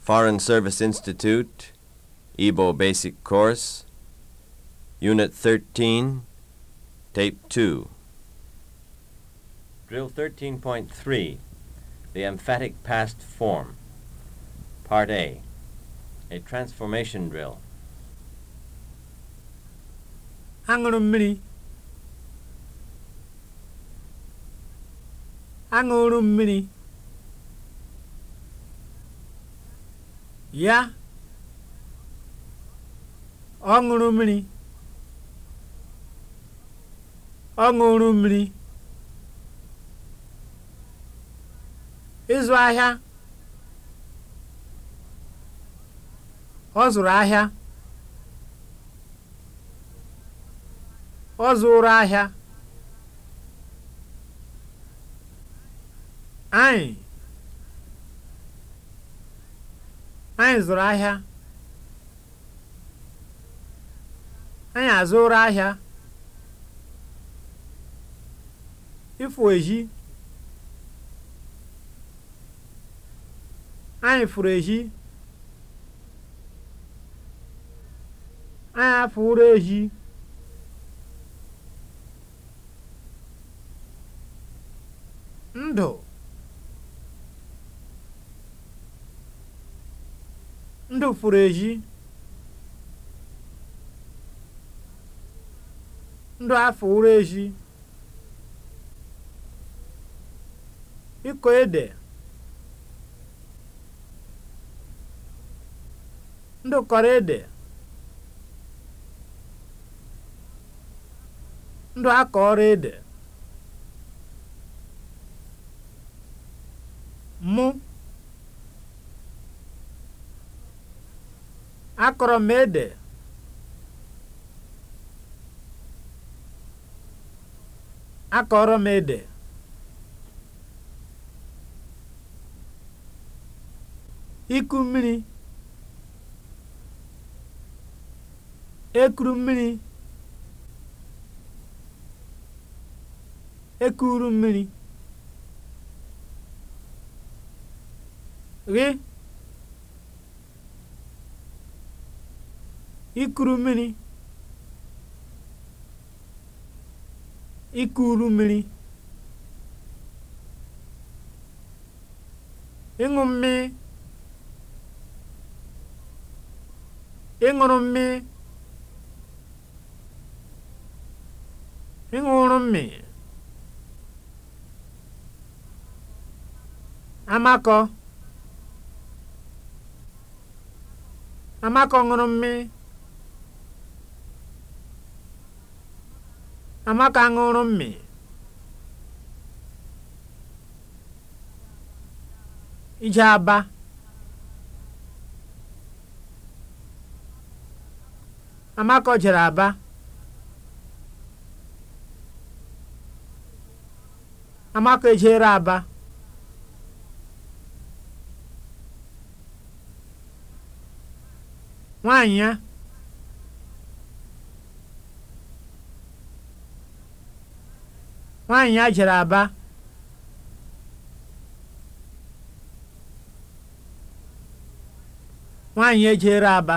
Foreign Service Institute, Igbo Basic Course, Unit 13, Tape 2. Drill 13.3, The Emphatic Past Form. Part A, A Transformation Drill. Aṅụrụ mmiri. Aṅụrụ mmiri. ya ọ ṅụrụ mmiri ọ ṅụrụ mmiri ịzụ ahịa ọ zụrụ ahịa ọ zụrụ ahịa anyị Anyị zụrụ ahịa. Anyị azụrụ ahịa. Ịfụ ehi. Anyị furu ehi. Anyị afụrụ ehi. Ndụ. ndị fụrụ eji ndụ afọ ụrụ eji ịkọ ede ndụ kọrọ ede ndụ ọrụ ede akọrọ m ede akọrọ m ede iku mmiri ekuru mmiri ekuru mmiri gị ikuru mmiri ikuru mmiri ịṅụ mmiri ịṅụrụ mmiri ịṅụrụ mmiri amakọ amakọ ṅụrụ mmiri Amaka ṅụrụ mmị. Ije aba. Amaka jere aba. Amaka ejere aba. Nwaanyị ya. nwaanyị ya jere aba nwaanyị ejere aba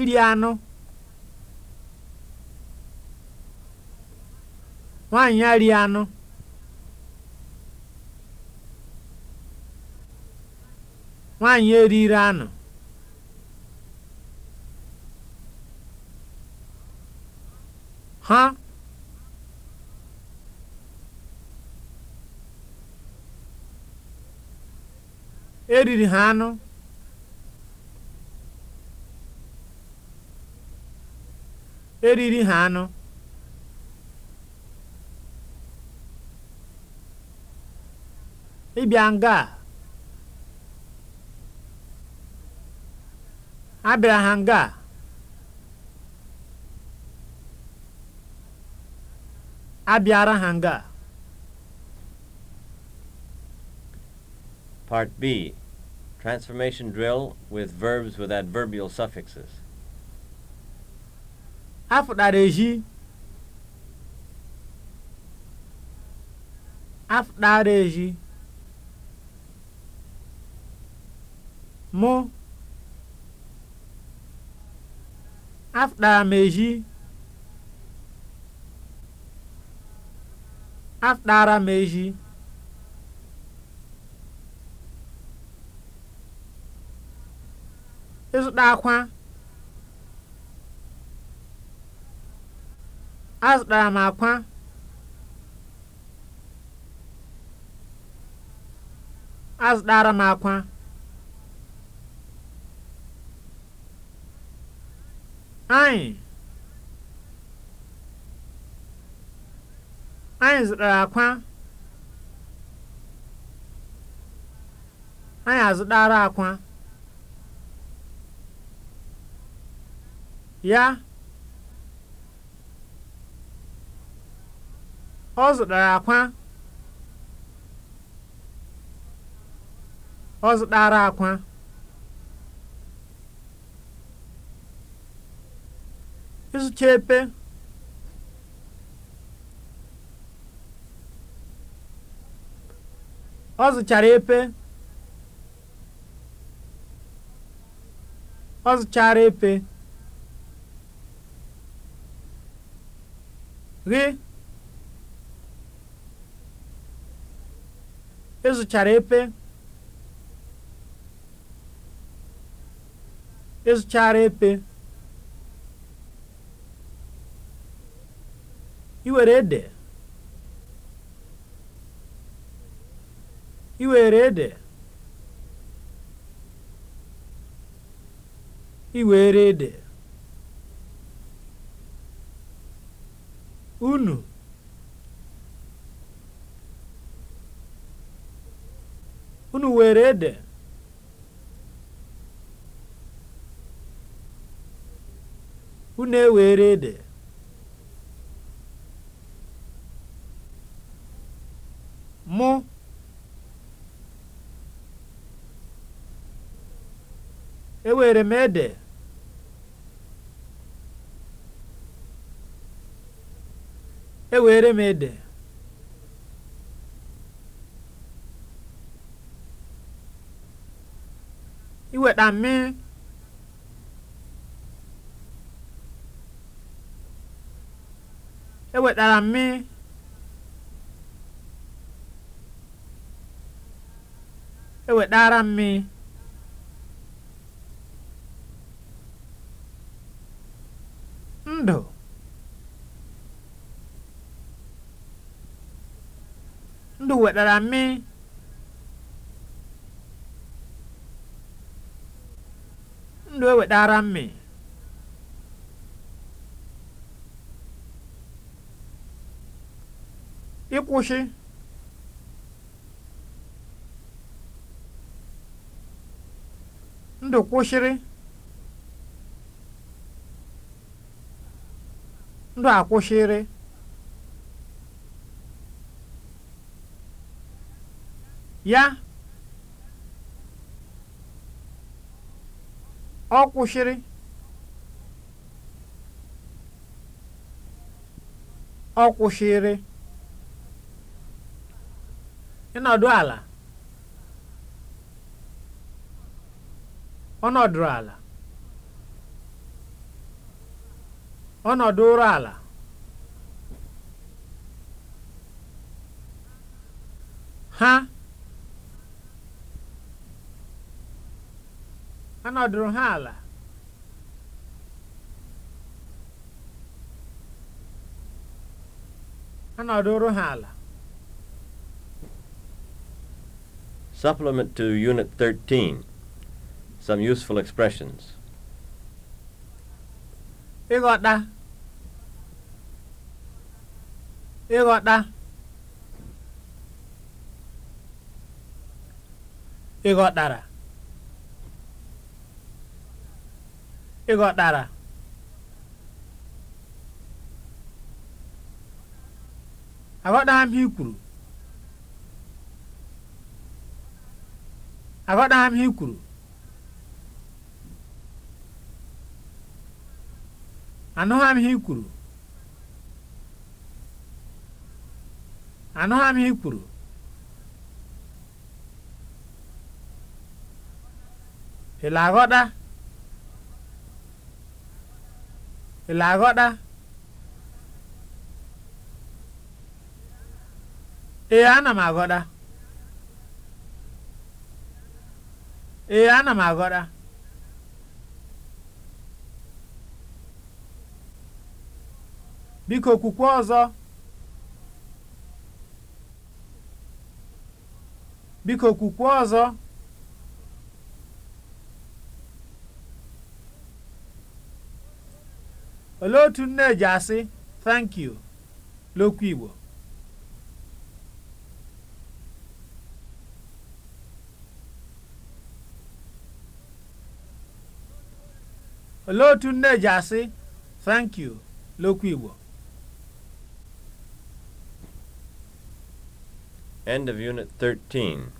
iri anụ nwaanyị ya rie anụ nwaanyị eriri anụ Ha? Eriri ha anụ. Eriri ha anụ. Ịbịa nga a. Abịara ha nga abịara ha nga Part B Transformation drill with verbs with adverbial suffixes. A fụtara eji A mụ afụtara m atara m ehi ịzụta akwa azụtara m akwa azụtara m akwa anyị anyị zụtara akwa anyị azụtara akwa ya ọ zụtara akwa ọ zụtara akwa ịzụcha epe Ọ zụchara epe. Ọ zụchara epe. Gị. ịzụchara e epe. ịzụchara e epe. Ị were ede. ị were ede ị were ede unu unu were ede unu ewere ede mụ ewere m ede ewere m ede iweta mmiri ewetara mmiri ewetara mmiri ndụ ndụ wetara mmiri ndụ ewetara mmiri ịkwụsị ndụ kwushiri ndụ akwụsịrị ya ọ kwụsịrị ọ kwụsịrị ịnọdụ ala ọ nọdụrụ ala ọnọdụ ụra ala ha anọdụrụ ha ala anọdụrụ ha ala Supplement to Unit 13 Some useful expressions ịghọta ịghọta ịghọtara ịghọtara aghọtara m ihe kwuru aghọtara m ihe kwuru anụghị m ihe ị kwuru anụghị m ihe ị kwuru ị aghọta ee ana m aghọta biko kwukwe ọzọ biko olee otu nne ji asị thank you l'okwu Igbo ji asị thank l'okwu Igbo End of Unit 13.